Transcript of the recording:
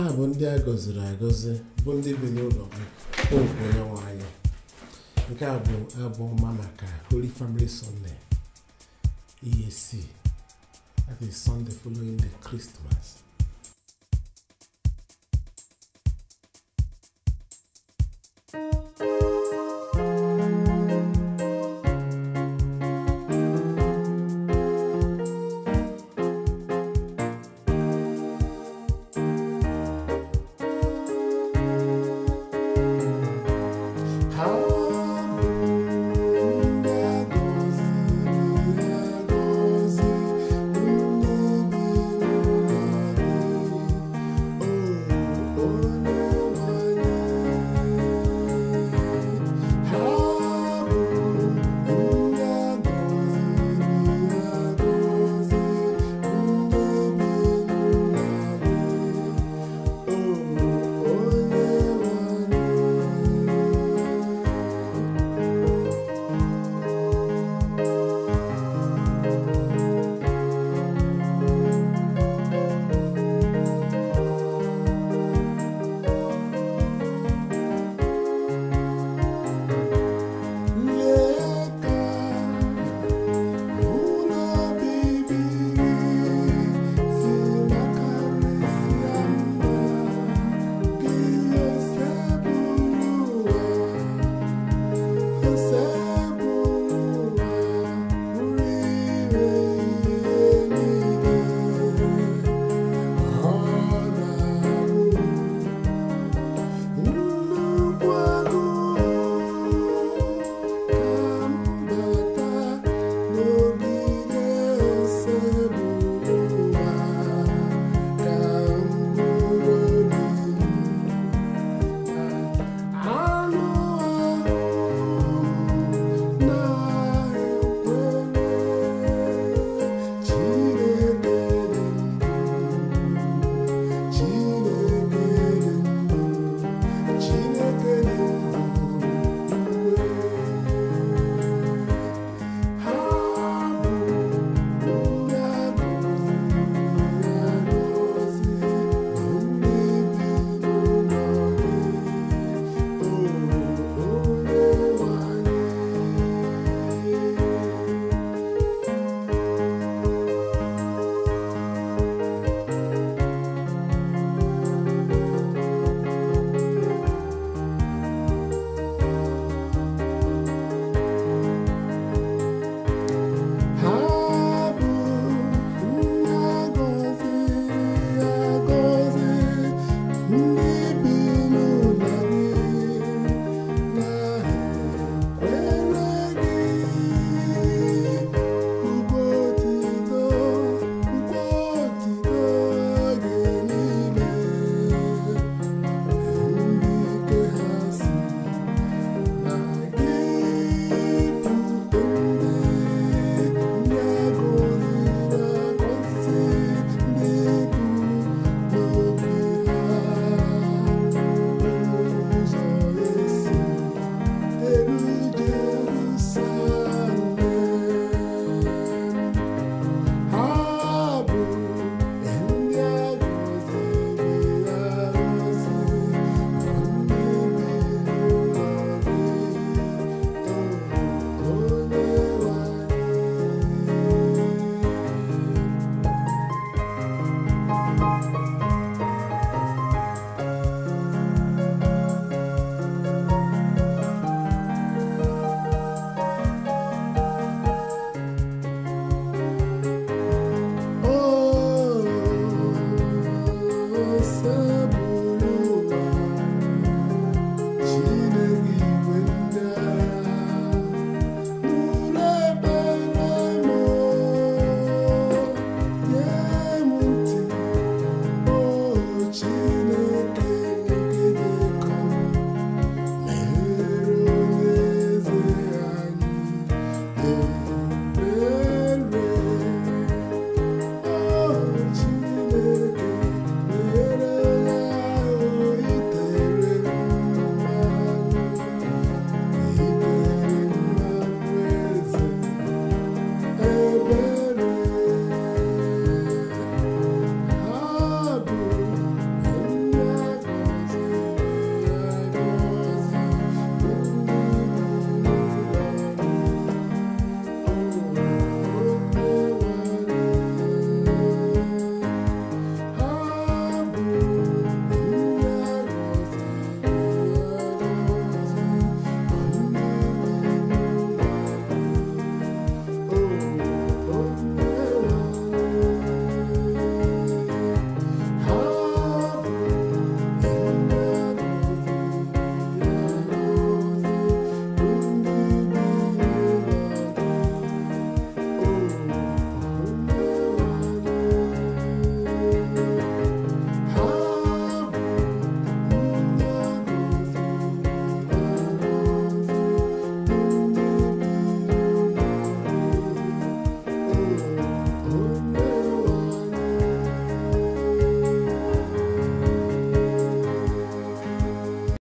ha bụ ndị a gọziri agọzi bụ ndị bi n'ụlọ gị popu onyenwe nke a bụ abụ ọma maka Holy Family Sunday EAC that Sunday following the Christmas